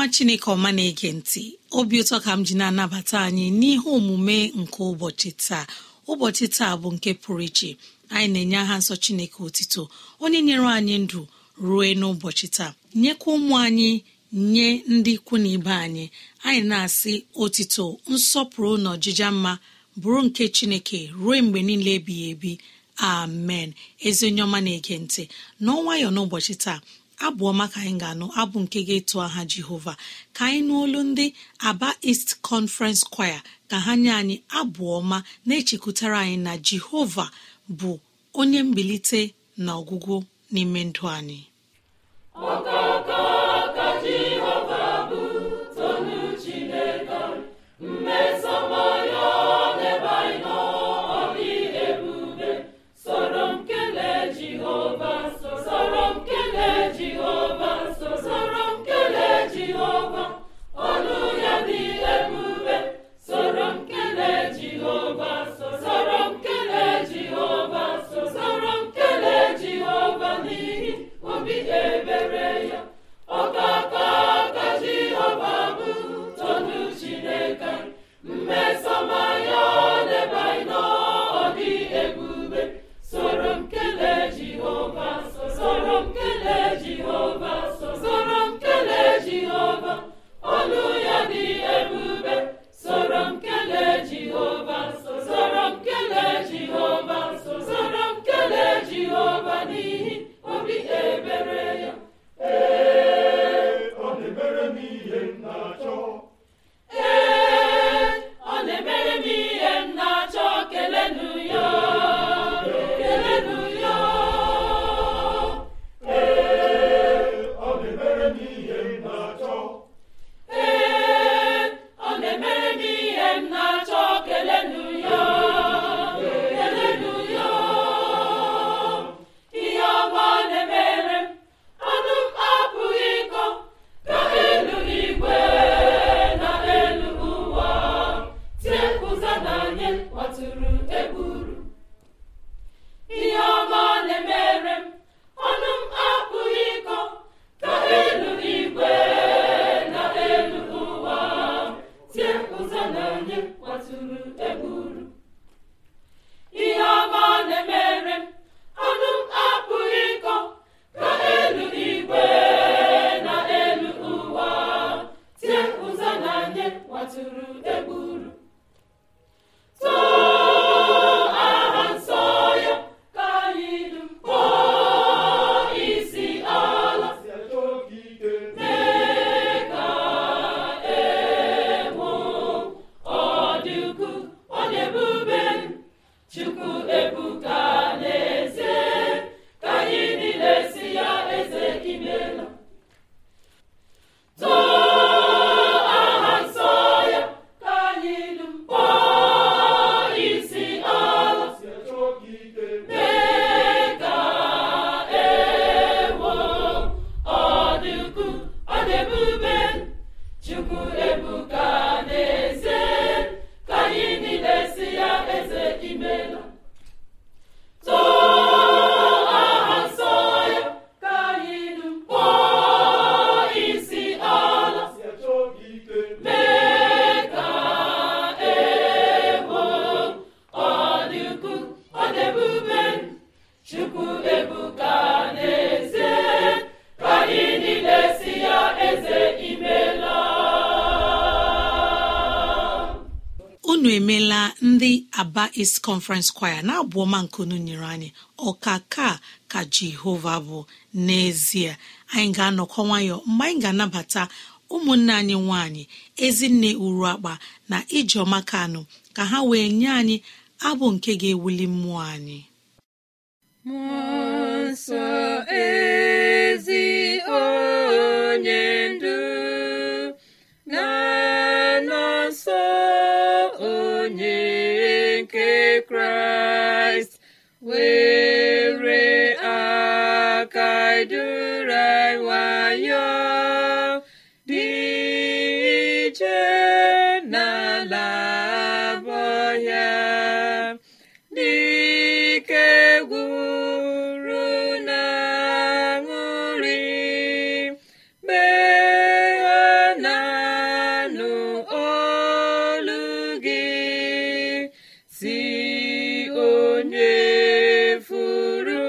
nwa chineke ọma na-ege ntị obi ụtọ ka m ji na-anabata anyị n'ihe omume nke ụbọchị taa ụbọchị taa bụ nke pụrụ iche anyị na-enye aha nsọ chineke otito onye nyere anyị ndụ ruo n'ụbọchị taa nyekwa ụmụ anyị nye ndị ikwu na ibe anyị anyị na-asị otito nsọpụrụ na ọjịja mma bụrụ nke chineke ruo mgbe niile ebighị ebi amen ezi onye ọma na-ege ntị n'ọnwayọ n'ụbọchị taa abụ ọma ka anyị ga-anụ abụ nke ga-etu aha jehova ka anyị n'olu ndị aba East Conference Choir ka ha nye anyị abụ ọma na-echekwutara anyị na jehova bụ onye mbilite na ọgwụgwụ n'ime ndụ anyị ya ọ sọma anyị n'ọrụ a East Conference kwaya na abụọma ọma nyere anyị ọka ka ka Jehova bụ n'ezie anyị ga-anọkọ nwayọ mgbe anyị ga-anabata ụmụnne anyị nwanyị ezinne uru akpa na ijeọma kanụ ka ha wee nye anyị abụ nke ga-ewuli mmụọ anyị e si onye furu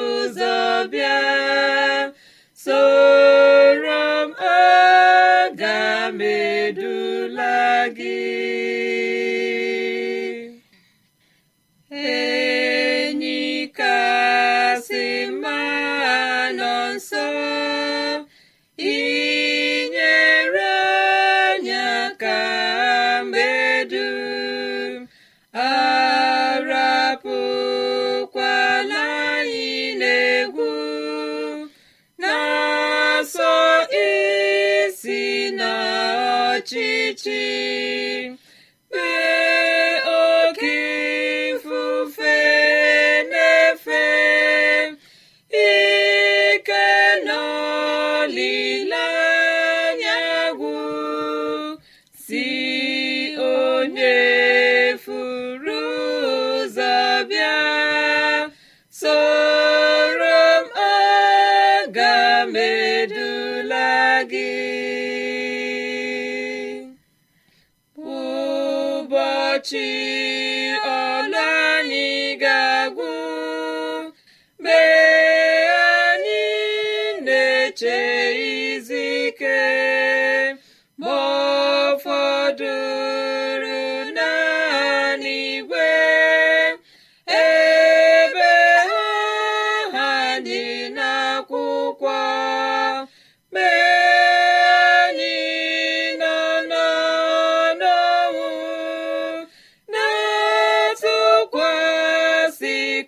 ụzọ bịa soro m ọ medula gị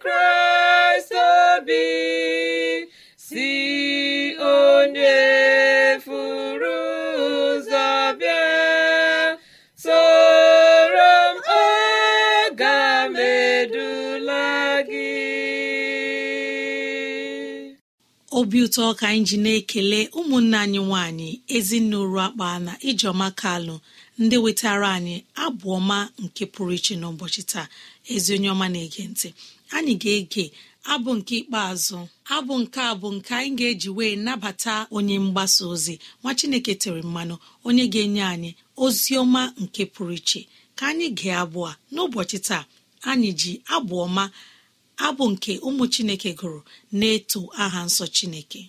kraịst obi si onye furu ụzọ soro m m edula gị obi ụtọ ka anyị ji na-ekele ụmụnne anyị nwanyị ezinụlọ akpa na ijeọma kalụ ndị wetara anyị abụ ọma nke pụrụ iche n'ụbọchị taa ezi onye ọma na-ege ntị anyị ga-ege abụ nke ikpeazụ abụ nke a bụ nke anyị ga-eji wee nabata onye mgbasa ozi nwa chineke tere mmanụ onye ga-enye anyị ozi ọma nke pụrụ iche ka anyị gee abụọ n'ụbọchị taa anyị ji abụ ọma abụ nke ụmụ chineke gụrụ na-eto aha nsọ chineke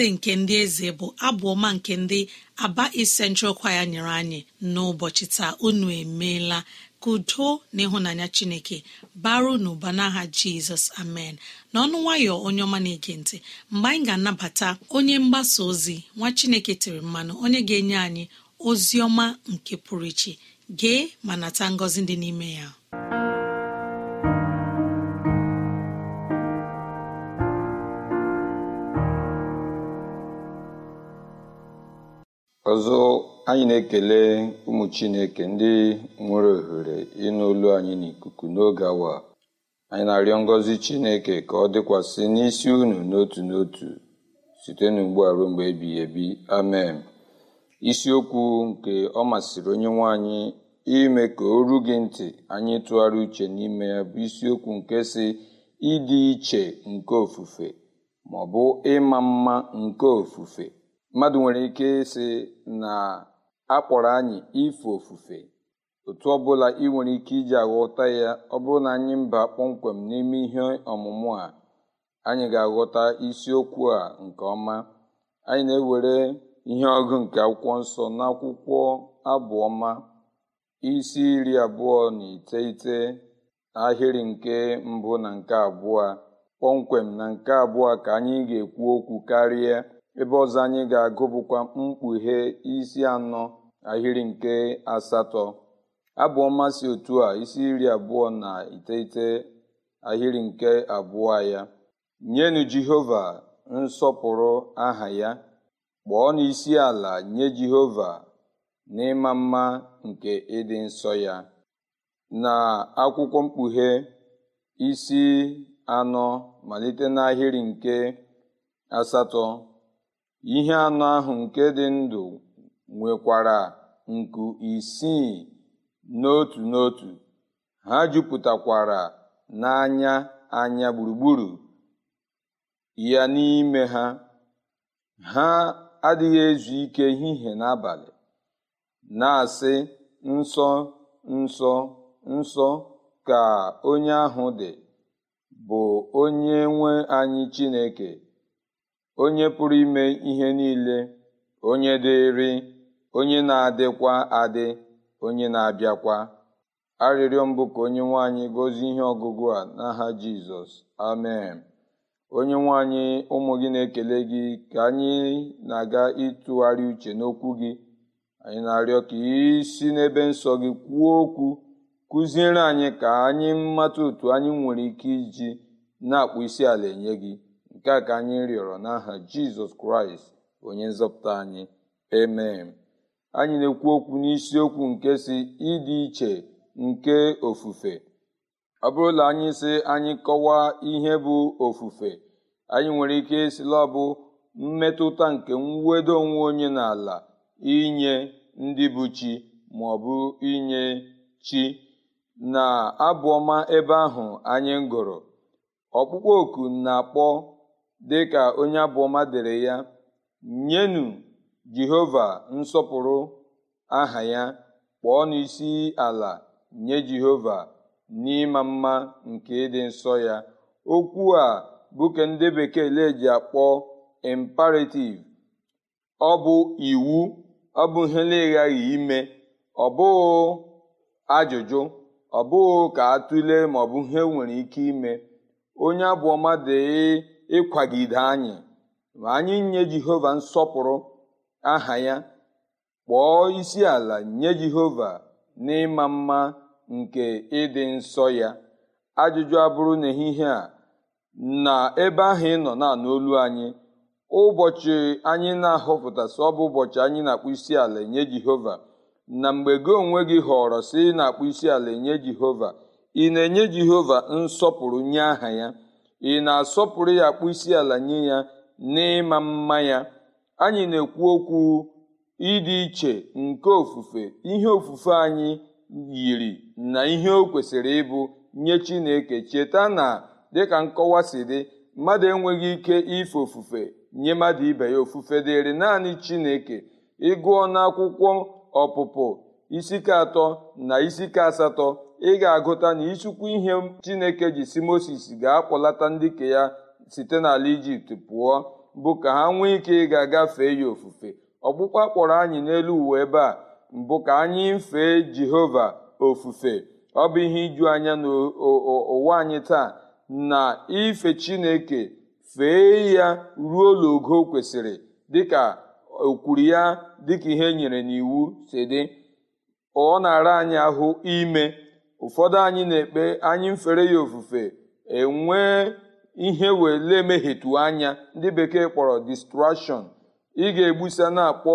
eze nke ndị eze bụ abụ ọma nke ndị aba Central kwaya nyere anyị n'ụbọchị taa unu emeela ka udo na ịhụnanya chineke baro n'ụba n'aha jizọs amen n'ọnụ nwayọ onye ọma na-ege ntị mgbe anyị ga-anabata onye mgbasa ozi nwa chineke tiri mmanụ onye ga-enye anyị ozi ọma nke pụrụ iche gee ma nata ngọzi dị n'ime ya ọzọ anyị na-ekele ụmụ chineke ndị nwere ohere ịnụ anyị n'ikuku n'oge awa anyị na-arịọ ngọzi chineke ka ọ dịkwasị n'isi unu n'otu n'otu site n'ugbu a ruo mgbe ebi amen isiokwu nke ọ masịrị onye nwe anyị ime ka o ru gị ntị anyị tụgharị uche n'ime ya bụ isiokwu nke si ịdị iche nke ofufe ma ọ bụ ịma mma nke ofufe mmadụ nwere ike ịsị na akpọrọ anyị ife ofufe otu ọbụla ị nwere ike iji aghọta ya ọ bụrụ na anyị mba kpọmkwem n'ime ihe ọmụmụ a anyị ga-aghọta isiokwu a nke ọma anyị na-ewere ihe ọgụ nke akwụkwọ nsọ n'akwụkwọ abụọma isi iri abụọ na iteghete ahịrị nke mbụ na nke abụọ kpọmkwem na nke abụọ ka anyị ga-ekwu okwu karịa ebe ọzọ anyị ga agụbukwa mkpughe isi anọ ahịrị nke asatọ abụọ mmasị otu a isi iri abụọ na iteghete ahịrị nke abụọ ya nyenu jehova nsọpụrụ aha ya kpọọ n'isi ala nye jehova n'ịma mma nke ịdị nsọ ya na akwụkwọ mkpughe isi anọ malite n'ahịrị nke asatọ ihe anọ ahụ nke dị ndụ nwekwara nku isii n'otu n'otu ha jupụtakwara n'anya anya gburugburu ya n'ime ha ha adịghị ezu ike ehihie n'abalị na-asị nsọ nsọ nsọ ka onye ahụ dị bụ onye nwe anyị Chineke onye pụrụ ime ihe niile onye dịrị onye na-adịkwa adị onye na-abịakwa arịrịọ mbụ ka onye nwanyị gozie ihe ọgụgụ a n'aha jizọs amen onye nwanyị ụmụ gị na-ekele gị ka anyị na-aga ịtụgharị uche n'okwu gị anyị na-arịọ ka isi n'ebe nsọ gị kwuo okwu kụziere anyị ka anyị mata otu anyị nwere ike iji na-akpụ isi ala enye gị nke a ka anyị rịọrọ n'aha jizọs kraịst onye nzọpụta anyị emee anyị na-ekwu okwu n'isiokwu nke si ịdị iche nke ofufe ọ bụrụ na anyị si anyị kọwaa ihe bụ ofufe anyị nwere ike isila ọbụ mmetụta nke mwedo onwe onye n'ala inye ndị bụ chi ma ọ bụ inye chi na abụọma ebe ahụ anyị gụrụ ọkpụkpọ oku na-akpọ dị ka onye abụọma dere ya nyenu jehova nsọpụrụ aha ya kpọọ n'isi ala nye jehova n'ịma mma nke ịdị nsọ ya okwu a bụ ka ndị bekee ji akpọ imperativ ọ bụ iwu ọ bụ ihe na-eghaghị ime ọ bụghị ajụjụ ọ bụghị ka atụle ma ọ bụ ihe nwere ike ime onye abụọma dee ịkwagide anyị ma anyị nye jehova nsọpụrụ aha ya kpọọ isi ala nye jehova n'ịma mma nke ịdị nsọ ya ajụjụ abụrụ n'ehihie a na ebe ahụ ị nọ na n'olu anyị ụbọchị anyị na sị ọ bụ ụbọchị anyị na-akpụ isi ala nye jehova na mgbe gị onwe gị họrọ sị ị na-akpụ isi ala nye jehova ị na-enye jehova nsọpụrụ nye aha ya ị na-asọpụrụ ya akpụ isi ala nye ya n'ịma mma ya anyị na-ekwu okwu ịdị iche nke ofufe ihe ofufe anyị yiri na ihe o kwesịrị ịbụ nye chineke cheta na dịka nkọwa si dị mmadụ enweghị ike ife ofufe nye mmadụ ibe ya ofufe dịrị naanị chineke ịgụọ n'akwụkwọ ọpụpụ isike atọ na isike asatọ ị ga-agụta na ịchụkwu ihe chineke ji si moses ga-akpọlata ndị ka ya site n'ala ijipt pụọ bụ ka ha nwee ike ịga gafee ya ofufe ọkpụkpa kpọrọ anyị n'elu uwe ebe a mbụ ka anyị fee jehova ofufe ọ bụ ihe iju anya n'ụwa anyị taa na ife chineke fee ya ruo ologo kwesịrị dịka okwuru ya dịka ihe e nyere n'iwu si dị ọ na-ara anyị ahụ ime ụfọdụ anyị na-ekpe anyị mfere ya ofufe enwee ihe wele mehetu anya ndị bekee kpọrọ distraction ị ga-egbusa na-akpọ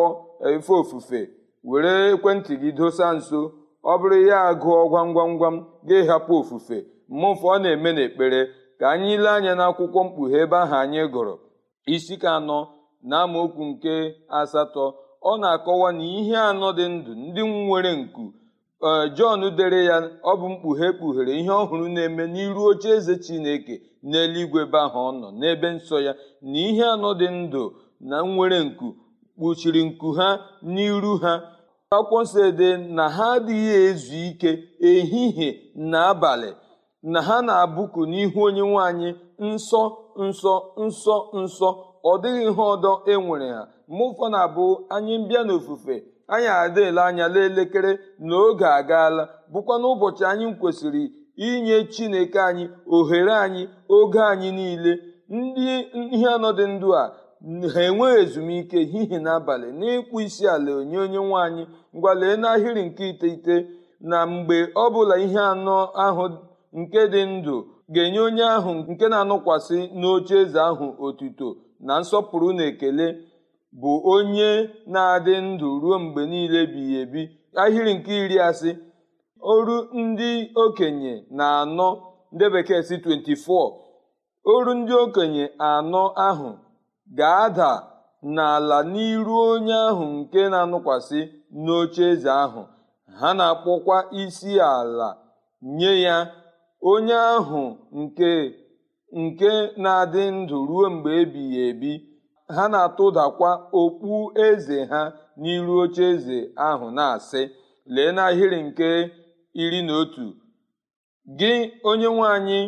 efe ofufe were ekwentị gị dosa nso ọ bụrụ ya agụọ gwam gwam gwam ga-ehapụ ofufe mmụfe ọ na-eme n'ekpere ka anyị lee anya n'akwụkwọ mkpughe ebe ahụ anyị gụrụ isi ka anọ na amaokwu nke asatọ ọ na-akọwa na ihe anọ dị ndụ ndị nwere nku jọn dere ya ọ bụ mkpughe kpughere ihe ọhụrụ na-eme n'iru oche eze chineke n'eluigwe be ahụ ọ nọ n'ebe nsọ ya na ihe anọ dị ndụ na nwere nku kpuchiri nku ha n'iru ha akwụkwọ nsọ ede na ha adịghị ezu ike ehihie na abalị na ha na-abụku n'ihu onye nwanyị nsọ nsọ nsọ nsọ ọ dịghị ihe ọdọ enwere ha mụfọ na abụ anyị mbịa n'ofufe anyị adịla anya n'elekere na oge agaala bụkwa n'ụbọchị anyị kwesịrị inye chineke anyị ohere anyị oge anyị niile ndị ihe anọ dị ndụ a ha enweghị ezumike hihi n'abalị n'ịkpụ isi ala onye onye nwaanyị ngwalee n'ahịrị nke iteghete na mgbe ọ bụla ihe anọ ahụ nke dị ndụ ga-enye onye ahụ nke na-anọkwasị n'oche eze ahụ otuto na nsọpụrụ na ekele bụ onye na-adị ndụ ruo mgbe niile ebighị ebi ahịrị nke iri asị oru ndị okenye na anọ ndị 24 oru ndị okenye anọ ahụ ga-ada n'ala n'iru onye ahụ nke na-anụkwasị n'oche eze ahụ ha na-akpọkwa isi ala nye ya onye ahụ nke nke na-adị ndụ ruo mgbe ebighị ebi ha na-atụdakwa okpu eze ha n'iru oche eze ahụ na-asị lee n'ahịrị nke iri na otu gị onye nwe anyị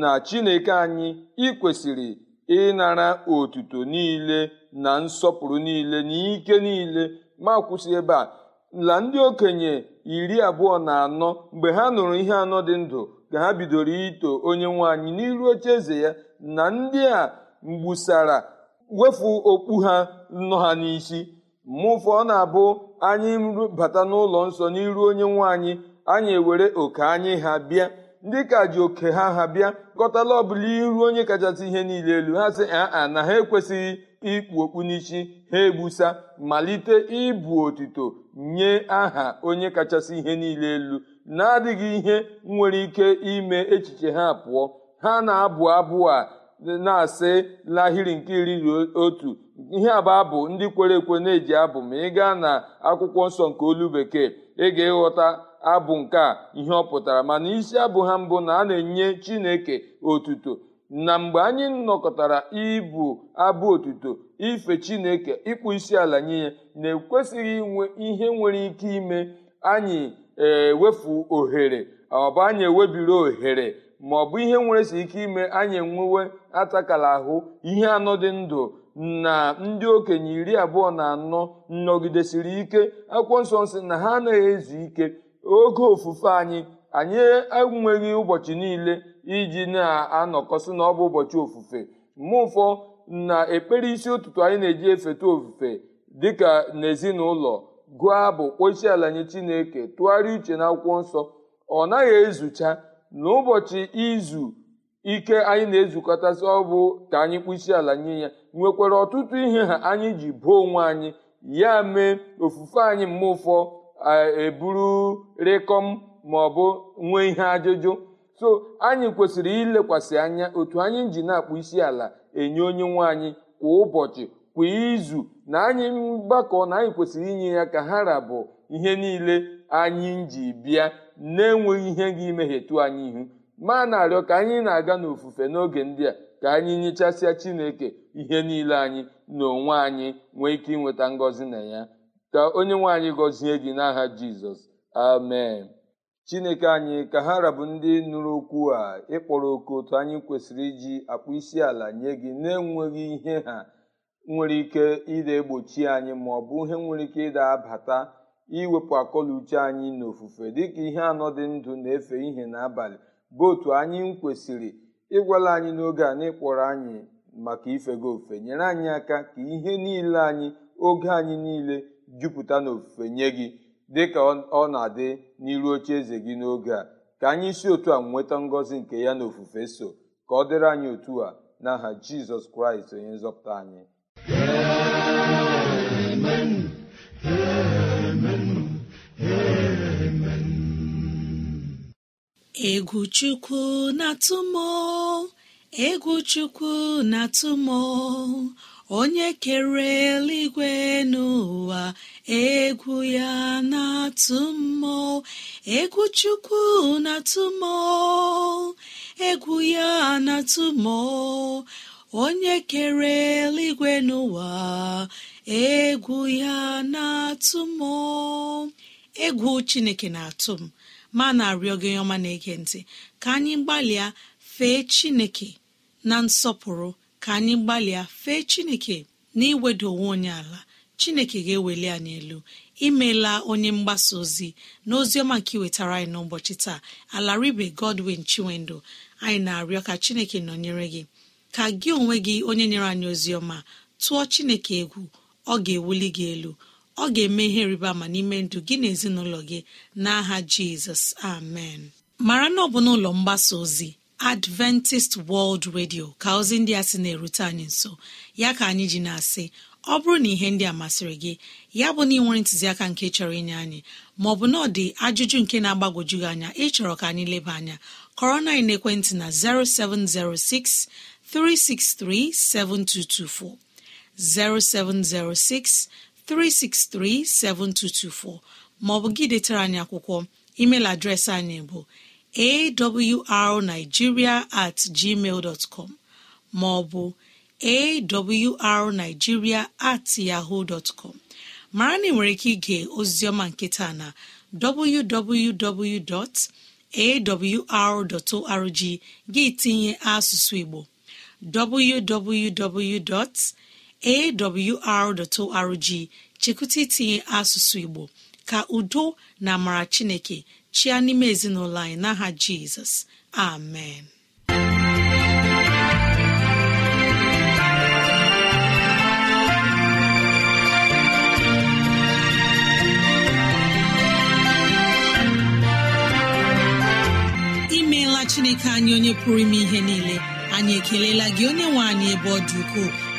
na chineke anyị ị kwesịrị ịnara otuto niile na nsọpụrụ niile na ike niile ma kwụsị ebe a la ndị okenye iri abụọ na anọ mgbe ha nụrụ ihe anọ dị ndụ ka ha bidoro ito onye nwe anyị n'iru oche eze ya na ndị a mgbusara wefu okpu ha nọ ha n'isi mụfọ ọ na-abụ anyị bata n'ụlọ nsọ n'iru onye nwe anyị anyị ewere oke anyị ha bịa ndị ka ji oke ha ha bịa kọtala ọbụla iru onye kachasị ihe niile elu ha sị aa na ha ekwesịghị ikpu okpu n'isi ha egbusa malite ịbụ otito nye aha onye kachasị ihe niile elu na-adịghị ihe nwere ike ime echiche ha pụọ ha na-abụ abụ a na-asị lahiri nke iri na otu ihe a bụ abụ ndị kwere ekwe na-eji abụ ma ị gaa na akwụkwọ nsọ nke olu bekee ị ga-ịghọta abụ nke a ihe ọ pụtara mana isi abụ ha mbụ na a na-enye chineke otuto na mgbe anyị nọkọtara ibu abụ otuto ife chineke ịkpụ isi ala nye ya na-ekwesịghị inwe ihe nwere ike ime anyị ewefu ohere ọba anyị ewebiri ohere ma ọ bụ ihe si ike ime anyị enwewe atakala ahụ ihe anọ dị ndụ na ndị okenye iri abụọ na anọ nnọgidesiri ike akwụkwọ nsọ nsị na ha anaghị ezu ike oge ofufe anyị anyị enweghị ụbọchị niile iji na-anọkọsị na ọ bụ ụbọchị ofufe mgbe ụfọ na ekpere isi ụtụtụ anyị na-eji efeta ofufe dịka n'ezinụlọ gụọ abụ kpochi ala nye chineke tụgharịa uche na akwụkwọ nsọ ọ naghị ezucha n'ụbọchị izu ike anyị na-ezukọtasị ọ bụ ka anyị kpụsị ala nye ya nwekwara ọtụtụ ihe ha anyị ji bụo onwe anyị ya mee ofufe anyị mma ụfọ eburu rịkọm ma ọ bụ nwee ihe ajụjụ so anyị kwesịrị ilekwasị anya otu anyị ji na-akpụ isi ala enye onye nwe anyị kwa ụbọchị kwa izu na anyị mgbakọ na anyị kwesịrị inye ya ka ha rabụ ihe niile anyị ji bịa na-enweghị ihe ga-imehie anyị ihu ma na-arịọ ka anyị na-aga n'ofufe n'oge ndị a ka anyị nyechasịa chineke ihe niile anyị na onwe anyị nwee ike inweta ngọzi na ya ka onye nwe anyị gọzie gị n'aha jizọs amen chineke anyị ka ha rabụ ndị nụrụ okwu a ịkpọrọ oku otu anyị kwesịrị iji akpụ isi ala nye gị na-enweghị ihe ha nwere ike ịda egbochi anyị ma ọ bụ ihe nwere ike ịda abata iwepụ akọluche anyị n'ofufe dịka ihe anọ dị ndụ na-efe ihe n'abalị bụ otu anyị kwesịrị ịgwala anyị n'oge a n'ịkpọrọ anyị maka ife gị ofufe nyere anyị aka ka ihe niile anyị oge anyị niile jupụta n'ofufe nye gị dịka ọ na-adị n'iru oche eze gị n'oge a ka anyị si otu a nweta ngọzi nke ya na ofufe so ka ọ dịrị anyị otu a n'aha Jizọs Kraịst onye nzọpụta anyị egwu chukwu na-atụmọ egwu chukwu na-atụmọ onye kere eluigwe n'ụwa egwu ya na-atụ egwu chukwu na-atụ egwu ya na-atụ onye kere eluigwe n'ụwa egwu ya na-atụ egwu chineke na-atụ m ma na-arịọ gị ọma na-ege ntị ka anyị gbalịa fee chineke na nsọpụrụ ka anyị gbalịa fee chineke na iweda onwe onye ala chineke ga-eweli anyị elu imeela onye mgbasa ozi na ozi ọma nke iwetara anyị n'ụbọchị taa alaribe godwin chinwendụ anyị na-arịọ ka chineke nọnyere gị ka gị onwe gị onye nyere anyị ozi ọma tụọ chineke egwu ọ ga-ewuli gị elu ọ ga-eme ihe rịba ama n'ime ndụ gị na ezinụlọ gị n'aha jizọs amen mara na ọ bụ n'ụlọ mgbasa ozi adventist world radio ka ozi ndị a sị na-erute anyị nso ya ka anyị ji na-asị ọ bụrụ na ihe ndị a masịrị gị ya bụ na ị nwere ntụziaka nke chọrọ inye anyị maọbụ na ọ dị ajụjụ nke na-agbagwoju gị anya ịchọrọ ka anyị leba anya kọrọ na ekwentị na 0706 363 7224 0706 363-7224 maọbụ gị detara anyị akwụkwọ email adreesị anyị bụ awrnigeria at gmail com maọbụ awrnigeria at yahoo dot com mara na ị nwere ike ige ozioma nketa na www.awr.org gị tinye asụsụ Igbo www. awr.org chekwụta itinye asụsụ Igbo ka udo na amara Chineke chịa n'ime ezinụlọ anyị n'aha Jizọs amen imeela Chineke anyị onye pụrụ ime ihe niile anyị ekelela gị onye nwe anyị ebe ọ dị ukwuu.